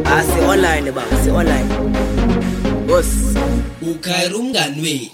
asi-online ah, baba si-online bos ukhayira umngani